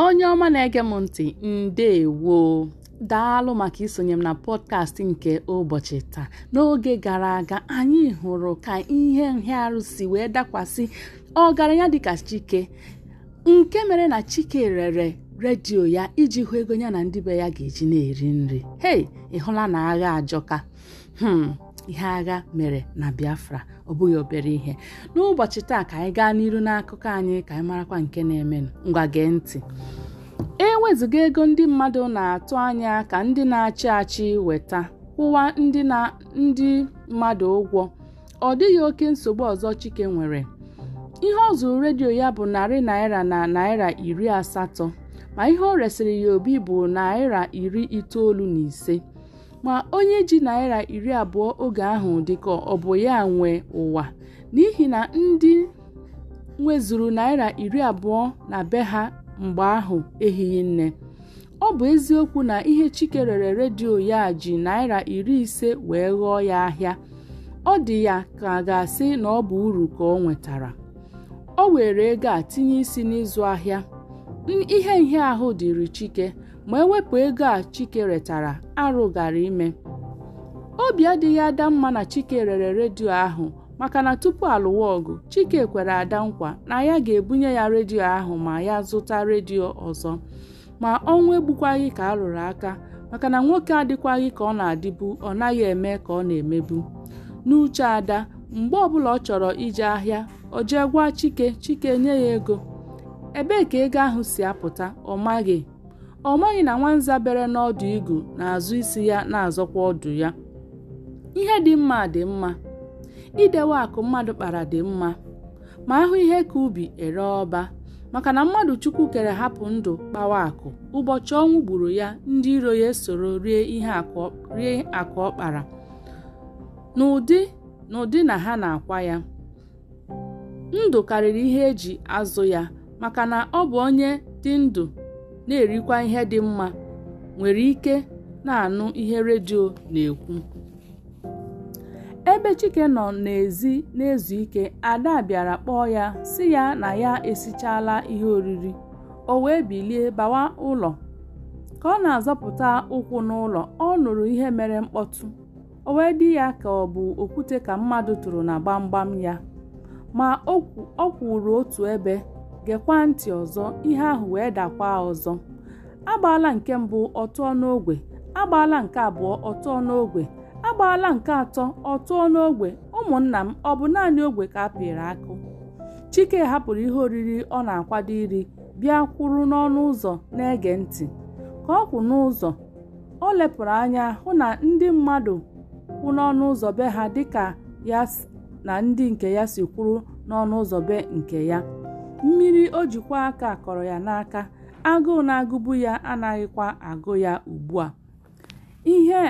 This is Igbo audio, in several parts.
onye ọma na-ege m ntị ndewo daalụ maka isonye m na pọdkast nke ụbọchị taa n'oge gara aga anyị hụrụ ka ihe nhịarụ si wee dakwasị ọgaranya dịka chike nke mere na chike rere redio ya iji hụ ego ya na ndị be ya ga-eji na-eri nri hei ị hụla na agha ajọka hmm. ihe agha mere na biafra ọ bụghị obere ihe n'ụbọchị taa ka anyị gaa n'iru n'akụkọ anyị ka anyị marakwa nke na-emenụ ngwa gee ntị e wezụga ego ndị mmadụ na-atụ anya ka ndị na-achị achị weta kwụwa ndị mmadụ ụgwọ ọ dịghị oke nsogbu ọzọ chike nwere ihe ọ zụrụ redio ya bụ narị naira na naira iri asatọ ma ihe o resịrị ya obi bụ naira iri itoolu na ise ma onye ji naira iri abụọ oge ahụ dịka ọ bụ ya nwe ụwa n'ihi na ndị nwezuru naira iri abụọ na be ha mgbe ahụ ehihie nne ọ bụ eziokwu na ihe Chike rere redio ya ji naira iri ise wee ghọọ ya ahịa ọ dị ya ka a ga-asị na ọ bụ uru ka ọ nwetara o were ego a tinye isi n'ịzụ ahịa ihe ahụ dịrị Chike ma ewepụ ego a Chike retara arụ gara ime obi adịghị ada mma na Chike rere redio ahụ maka na tupu alụwa ọgụ Chike kwere ada nkwa na ya ga-ebunye ya redio ahụ ma ya zụta redio ọzọ ma ọnwụ egbukwaghị ka a rụrụ aka maka na nwoke adịkwaghị ka ọ na-adịbu ọ naghị eme ka ọ na-emebu n'uche ada mgbe ọbụla ọ chọrọ ije ahịa o jee gwa Chike Chike nye ya ego ebee ka ego ahụ si apụta ọ maghị ọ maghị na nwanza bere n'ọdụ igu na-azụ isi ya na-azọkwa ọdụ ya ihe dị mma dị mma idewe akụ mmadụ kpara dị mma ma ahụ ihe ka ubi ere ọba maka na mmadụ chukwu kere hapụ ndụ kpawa akụ ụbọchị ọnwụ gburu ya ndị iro ya soro rie ihe akụ ọkpara n'ụdị n'ụdị na ha na-akwa ya ndụ karịrị ihe eji azụ ya maka na ọ bụ onye dị ndụ na-erikwa ihe dị mma nwere ike na-anụ ihe redio na-ekwu ebe Chike nọ n'ezi na-ezu ike ada bịara kpọọ ya si ya na ya esichaala ihe oriri o wee bilie bawa ụlọ ka ọ na-azọpụta ụkwụ n'ụlọ ọ nụrụ ihe mere mkpọtụ o wee dị ya ka ọ bụ okwute ka mmadụ tụrụ na gbamgbam ya ma ọ kwụrụ otu ebe gekwa ntị ọzọ ihe ahụ wee dakwa ọzọ agbaala nke mbụ ọtụọ n'ogwe agbaala nke abụọ ọtụọ n'ogwe agbaala nke atọ ọtụọ n'ogbe ụmụnna m ọ bụ naanị ogwe ka a pịrị akụ chike hapụrụ ihe oriri ọ na-akwado iri bịa kwụrụ n'ọnụ ụzọ na-ege ntị ka ọ kwụ n'ụzọ o lepụrụ anya hụ na ndị mmadụ kwụ n'ọnụ ụzọ be ha dịka ya na ndị nke ya si kwụrụ n'ọnụ ụzọ be nke ya mmiri o jikwa aka kọrọ ya n'aka agụụ na-agụbu ya anaghịkwa agụ ya ugbu a ihe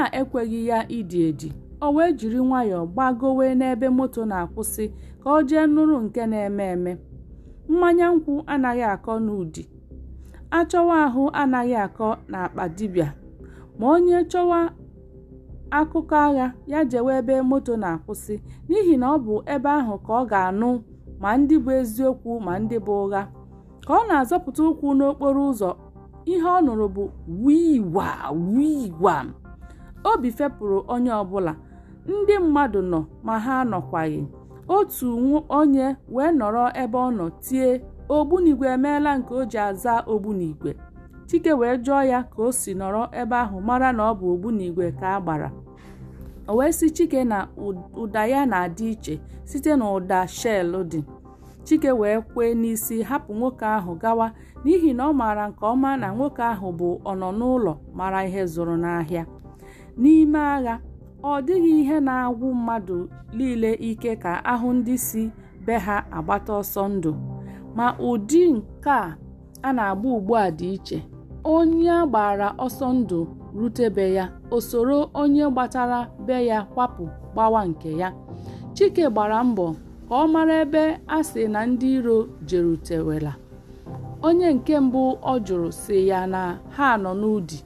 a ekweghị ya ịdị edi o wee jiri nwayọọ gbagowe n'ebe moto na-akwụsị ka o jee nụrụ nke na-eme eme mmanya nkwụ anaghị akọ n'ụdị achọwa ahụ anaghị akọ n'akpa dibịa ma onye chọwa akụkọ agha ya jewe ebe moto na-akwụsị n'ihi na ọ bụ ebe ahụ ka ọ ga-anụ ma ndị bụ eziokwu ma ndị bụ ụgha ka ọ na-azọpụta ụkwụ n'okporo ụzọ ihe ọ nụrụ bụ wiwa wiwa obi fepụrụ onye ọbụla ndị mmadụ nọ ma ha nọkwaghị otu onye wee nọrọ ebe ọ nọ tie ogbunigwe emeela nke o ji aza ogbunigwe chike wee jụọ ya ka o si nọrọ ebe ahụ mara na ọ bụ ogbunigwe ka a gbara o wee si chike na ụda ya na-adị iche site na ụda shell dị chike wee kwee n'isi hapụ nwoke ahụ gawa n'ihi na ọ maara nke ọma na nwoke ahụ bụ ọnọ n'ụlọ mara ihe zụrụ n'ahịa n'ime agha ọ dịghị ihe na-agwụ mmadụ niile ike ka ahụ ndị si be ha agbata ọsọ ndụ ma ụdị nke a na-agba ugbu a dị iche onye gbara ọsọ ndụ rute ya o soro onye gbatara be ya kwapụ gbawa nke ya chike gbara mbọ ka ọ mara ebe a sị na ndị iro jerutewela onye nke mbụ ọ jụrụ si ya na ha nọ n'ụdị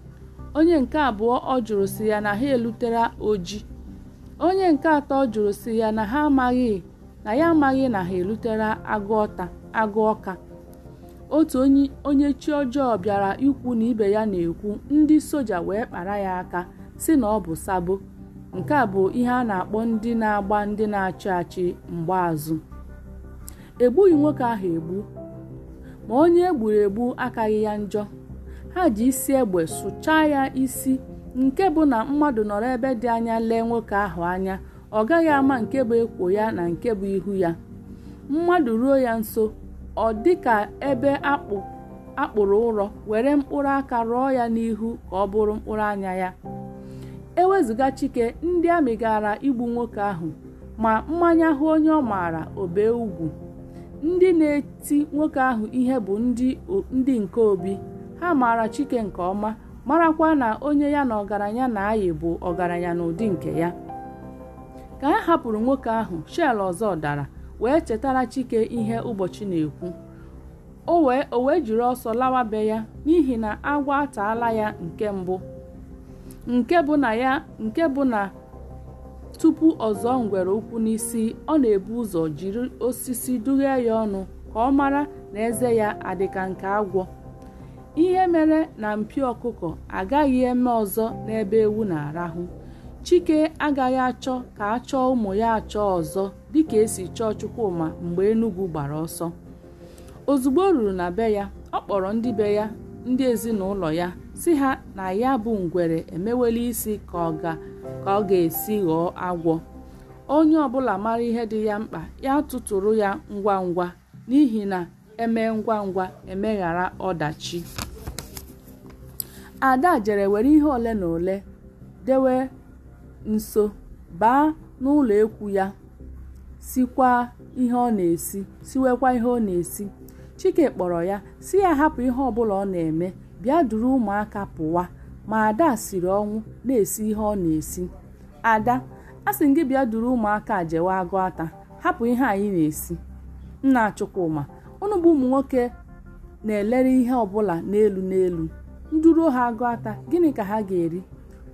onye nke abụọ ọ jụrụ si ya na ha elutere oji onye nke atọ jụrụ si ya na ha amaghị na ya amaghị na ha elutere agụ agụ ọka otu onye chi ọjọọ bịara ikwu na ibe ya na-ekwu ndị soja wee kpara ya aka si na ọ bụ sabo nke a bụ ihe a na-akpọ ndị na-agba ndị na-achị achị mgbaazụ egbughị nwoke ahụ egbu ma onye egburu egbu akaghị ya njọ ha ji isi egbe sụchaa ya isi nke bụ na mmadụ nọrọ ebe dị anya lee nwoke ahụ anya ọ gaghị ama nke bụ ekwo ya na nke bụ ihu ya mmadụ ruo ya nso ọ dị ka ebe akpụ akpụrụ ụrọ were mkpụrụ aka rụọ ya n'ihu ka ọ bụrụ mkpụrụ anya ya ewezụga chike ndị amị igbu nwoke ahụ ma mmanya hụ onye ọ maara obe ugwu ndị na-eti nwoke ahụ ihe bụ ndị nke obi ha maara chike nke ọma marakwa na onye ya na ọgaranya na-ayị bụ ọgaranya n'ụdị nke ya ka ha hapụrụ nwoke ahụ shel ọzọ dara wee chetara chike ihe oh. ụbọchị na-ekwu o wee jiri ọsọ lawa be ya n'ihi na agwọ ataala ya nke mbụ nke bụ na tupu ọzọ ngwere ụkwụ n'isi ọ na-ebu ụzọ jiri osisi dughee ya ọnụ ka ọ mara na eze ya adịka nke agwọ ihe mere na mpi ọkụkọ agaghị eme ọzọ n'ebe ewu na-arahụ chike agaghị achọ ka a chọọ ụmụ ya achọ ọzọ dịka esi chọọ chukwuma mgbe enugwu gbara ọsọ ozugbo o ruru na be ya ọ kpọrọ ndị be ya ndị ezinụlọ ya si ha na ya bụ ngwere emewela isi ka ọ ga-esi ghọọ agwọ onye ọbụla mara ihe dị ya mkpa ya tụtụrụ ya ngwa ngwa n'ihi na eme ngwa ngwa emeghara ọdachi ada jere were ihe ole na ole dewe nso baa n'ụlọekwu ya sikwaa ihe ọ na-esi siwekwa ihe ọ na-esi chike kpọrọ ya si ya hapụ ihe ọbụla ọ na-eme bịa duru ụmụaka pụwa ma ada siri ọnwụ na-esi ihe ọ na-esi ada a sị gị bịa duru ụmụaka jewe agụ ata hapụ ihe anyị na-esi nna Chukwuma ụnụ bụ ụmụ nwoke na-elere ihe ọbụla n'elu n'elu nduru ha agụ ata gịnị ka ha ga-eri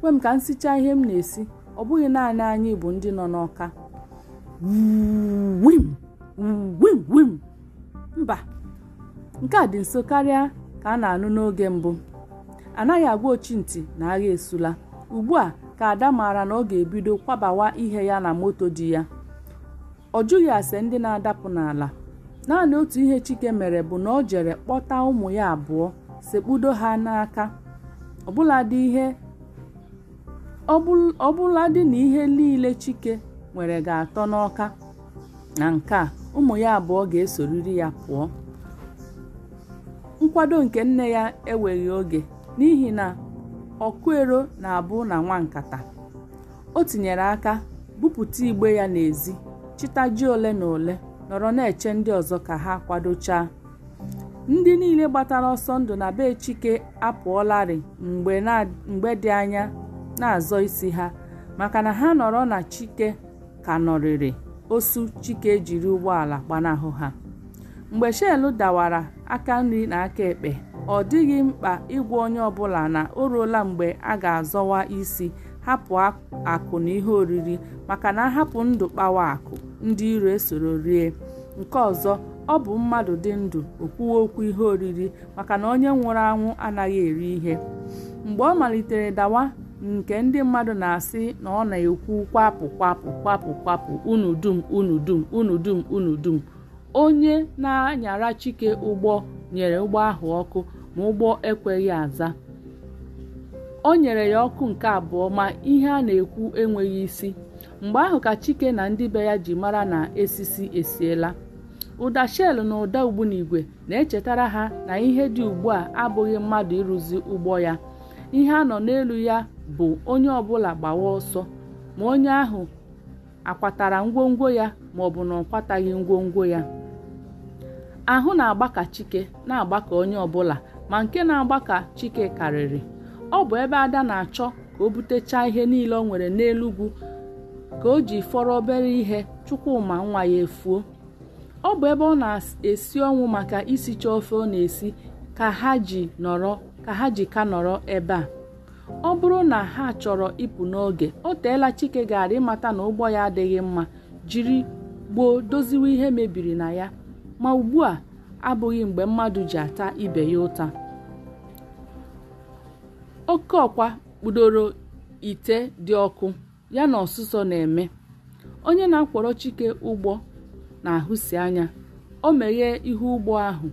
kwe m ka m sichaa ihe m na-esi ọ bụghị naanị anyị bụ ndị nọ n'ọka wim mba nke a dị nso karịa ka a na-anụ n'oge mbụ anaghị agwa ochie ntị na agha esula ugbu a ka ada maara na ọ ga-ebido kwabawa ihe ya na moto dị ya ọ jụghị ase ndị na-adapụ n'ala naanị otu ihe chike mere bụ na ọ jere kpọta ụmụ ya abụọ sekpudo ha n'aka ọbụladị ihe ọbụladị na ihe niile Chike nwere ga-atọ n'ọka na nke a ụmụ ya abụọ ga-esoriri ya pụọ nkwado nke nne ya eweghị oge n'ihi na ọkụero na-abụ na nwa nkata o tinyere aka bupụta igbe ya n'ezi ji ole na ole nọrọ na-eche ndị ọzọ ka ha kwadochaa ndị niile gbatara ọsọ ndụ na be Chike apụọlarị mgbe dị anya na-azọ isi ha maka na ha nọrọ na chike ka nọrịrị osu chike jiri ụgbọala gbanahụ ha mgbe shelu dawara aka nri na aka ekpe ọ dịghị mkpa ịgwa onye ọbụla na o ruola mgbe a ga-azọwa isi hapụ akụ na ihe oriri maka na ahapụ ndụ kpawa akụ ndị iro esoro rie nke ọzọ ọ bụ mmadụ dị ndụ okwuwe okwu ihe oriri maka na onye nwụrụ anwụ anaghị eri ihe mgbe ọ malitere dawa nke ndị mmadụ na-asị na ọ na-ekwu kwapụ kwapụ kwapụ kwapụ unu dum unu dum unu dum unu dum onye na-anyara chike ụgbọ nyere ụgbọ ahụ ọkụ ma ụgbọ ekweghị aza o nyere ya ọkụ nke abụọ ma ihe a na-ekwu enweghị isi mgbe ahụ ka chike na ndị be ya ji mara na esisi esiela ụda shel na ụda ugbunigwe na-echetara ha na ihe dị ugbu a abụghị mmadụ ịrụzi ụgbọ ya ihe a nọ n'elu ya bụ onye ọbụla gbawa ọsọ ma onye ahụ akwatara ngwongwo ya ma ọ na ọ kwataghị ngwongwo ya ahụ na-agbaka chike na-agbaka onye ọbụla ma nke na-agbaka chike karịrị ọ bụ ebe ada na-achọ ka o butechaa ihe niile ọ nwere n'elugwu ka o ji fọrọ obere ihe Chukwuma nwa ya efuo ọ bụ ebe ọ na-esi ọnwụ maka isicha ofe ọ na-esi ka ha ji nọrọ ka ha ji ka nọrọ ebe a ọ bụrụ na ha chọrọ ịpụ n'oge o teela Chike gara ịmata na ụgbọ ya adịghị mma jiri gboo doziwe ihe mebiri na ya ma ugbu a abụghị mgbe mmadụ ji ata ibe ya ụta oke ọkwa kpudoro ite dị ọkụ ya na ọsụsọ na-eme onye na-akwọrọ Chike ụgbọ na-ahụsi anya o meghee ihu ụgbọ ahụ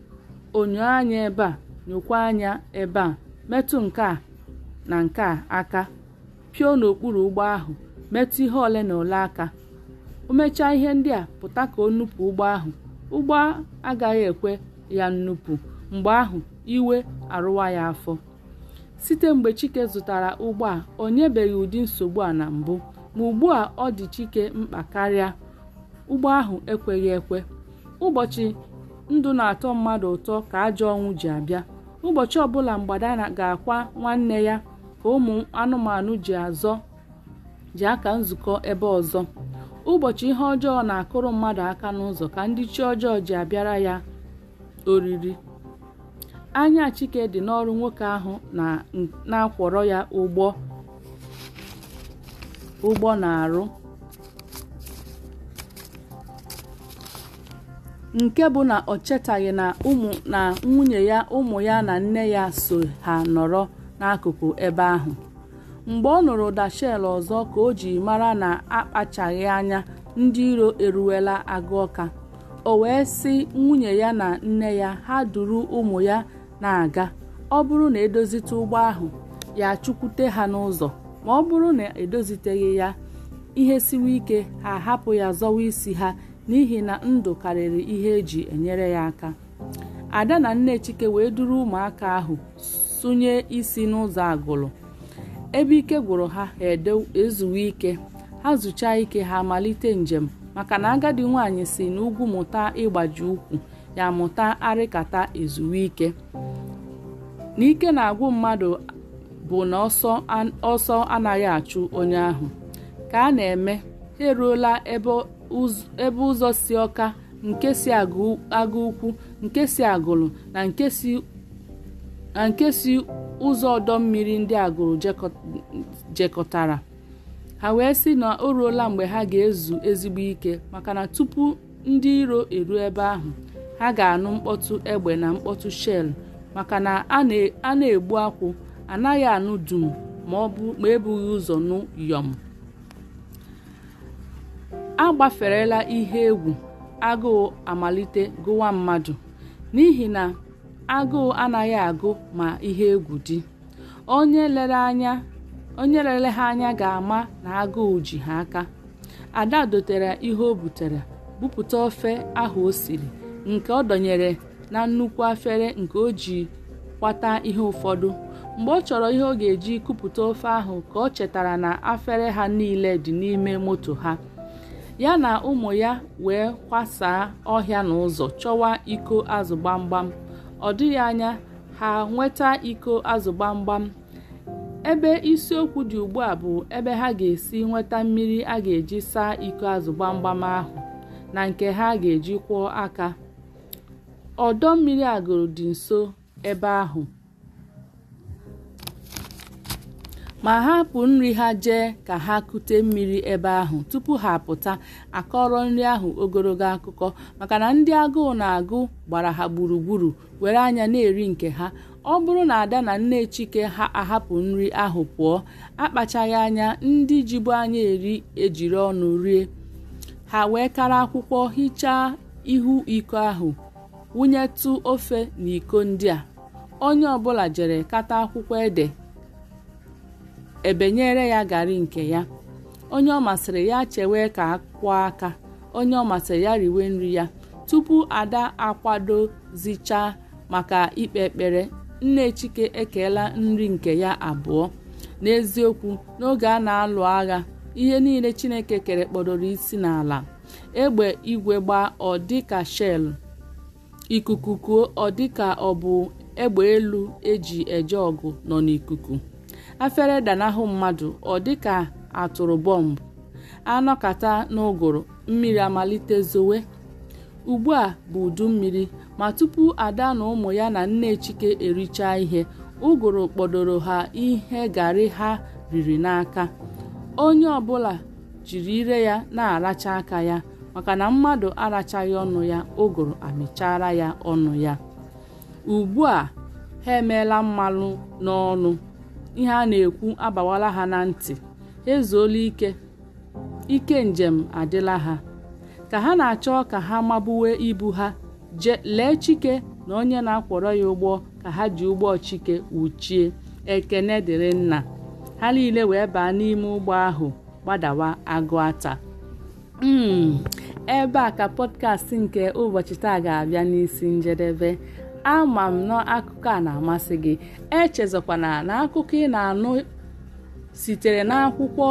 onyo anya ebe a nyokwa anya ebe a metụ nke a na nke a aka pio n'okpuru ụgbọ ahụ metụ ihe ole na ole aka o mechaa ihe ndị a pụta ka o nupụ ụgbọ ahụ ụgbọ agaghị ekwe ya nnupụ mgbe ahụ iwe arụwa ya afọ site mgbe chike zụtara ụgbọ a o nyebeghị ụdị nsogbu a na mbụ ma ugbu a ọ dị chike mkpa karịa ụgbọ ahụ ekweghị ekwe ụbọchị ndụ na-atọ mmadụ ụtọ ka ajọ ọnwụ ji abịa ụbọchị ọbụla mgbada ga-akwa nwanne ya ka ụmụ anụmanụ ji aka nzukọ ebe ọzọ ụbọchị ihe ọjọọ na-akụrụ mmadụ aka n'ụzọ ka ndị chi ọjọọ ji abịara ya oriri anya chike dị n'ọrụ nwoke ahụ na-akwọrọ ya ụgbọ ụgbọ na-arụ nke bụ na ọ chetaghị na na nwunye ya ụmụ ya na nne ya so ha nọrọ n'akụkụ ebe ahụ mgbe ọ nụrụ ụda ọzọ ka o ji mara na akpachaghị anya ndị iro eruwela agụ ọka o wee sị nwunye ya na nne ya ha duru ụmụ ya na-aga ọ bụrụ na edozite ụgbọ ahụ ya chụkwute ha n'ụzọ ma ọ bụrụ na edoziteghị ya ihe siwe ike ha hapụ ya zọwa isi ha n'ihi na ndụ karịrị ihe eji enyere ya aka ada na nne chike wee duru ụmụaka ahụ tụnye isi n'ụzọ agụlụ ebe ike gwụrụ ha ha ezuwe ike ha zụcha ike ha malite njem maka na agadi nwanyị si n'ugwu mụta ịgbaji ụkwụ ya mụta arịkata ezuwe ike na ike na-agwụ mmadụ bụ na ọsọ anaghị achụ onye ahụ ka a na-eme ha eruola ebe ụzọ si ọka nke si agụ ukwu nke si agụlụ na nke si na nke si ụzọ ọdọ mmiri ndị agụrụ jekọtara ha wee sị na o ruola mgbe ha ga-ezu ezigbo ike maka na tupu ndị iro eruo ebe ahụ ha ga-anụ mkpọtụ egbe na mkpọtụ shell maka na a na-egbu akwụ anaghị anụ dum ma ọ bụ ma ebughị ụzọ nụ yọm agbaferela ihe egwu agụụ amalite gụwa mmadụ n'ihi na agụụ anaghị agụ ma ihe egwu dị onye lere anya ha anya ga-ama na agụụ ji ha aka ada dotere ihe o butere bupụta ofe ahụ o siri nke ọ dọnyere na nnukwu afere nke o ji kwata ihe ụfọdụ mgbe ọ chọrọ ihe ọ ga-eji kupụta ofe ahụ ka ọ chetara na afere ha niile dị n'ime moto ha ya na ụmụ ya wee kwasaa ọhịa na ụzọ chọwa iko azụ gbamgbam ọ dịghị anya ha nweta iko azụ gbamgbam ebe isiokwu dị ugbu a bụ ebe ha ga-esi nweta mmiri a ga-eji saa iko azụ gbamgbam ahụ na nke ha ga-eji kwụọ aka ọdọ mmiri agụrụ dị nso ebe ahụ ma hapụ nri ha jee ka ha kute mmiri ebe ahụ tupu ha apụta akọrọ nri ahụ ogologo akụkọ maka na ndị agụụ na-agụ gbara ha gburugburu were anya na-eri nke ha ọ bụrụ na ada na nne chike ha ahapụ nri ahụ pụọ akpachaghị anya ndị jibu anya eri ejiri ọnụ rie ha wee kara akwụkwọ hichaa ihu iko ahụ wụnyetụ ofe na iko ndị a onye ọbụla jere kata akwụkwọ ede ebenyere ya garị nke ya onye ọ masịrị ya chewe ka kwụọ aka onye ọ masịrị ya riwe nri ya tupu ada akwadozicha maka ikpe ekpere nne chike ekeela nri nke ya abụọ n'eziokwu n'oge a na-alụ agha ihe niile chineke kere kpọdoro isi n'ala egbe igwe gbaa ọdịka ikuku kuo ọ dịka ọ bụ egbe elu eji eje ọgụ nọ n'ikuku afere danahụ mmadụ ọ dịka atụrụ bọmbụ anọkata n'ụgụrụ mmiri amalite zowe ugbu a bụ udu mmiri ma tupu ada na ụmụ ya na nne chike erichaa ihe ụgụrụ kpọdoro ha ihe garị ha riri n'aka onye ọbụla jiri ire ya na-aracha aka ya maka na mmadụ arachaghị ọnụ ya ụgụrụ amịchara ya ọnụ ya ugbu a ha emeela mmanụ n'ọnụ ihe a na-ekwu abawala ha na ntị ezuola ike ike njem adịla ha ka ha na-achọ ka ha mabuwe ibu ha je lee chike na onye na-akwọrọ ya ụgbọ ka ha ji ụgbọ chike wuchie ekene dịrị nna ha niile wee baa n'ime ụgbọ ahụ gbadawa agụ ata hmm, ebe a ka pọdkast nke ụbọchị taa ga-abịa n'isi njedebe ama m na akụkọ a na-amasị gị echezọkwana na akụkọ ị na-anụ sitere n'akwụkwọ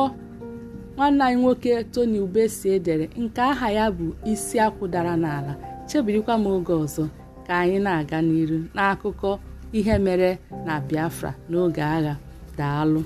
nwanne anyị nwoke Tony Ubesie dere nke aha ya bụ isi akwụ dara n'ala chebirikwa m oge ọzọ ka anyị na-aga n'iru n'akụkọ ihe mere na Biafra n'oge agha daalụ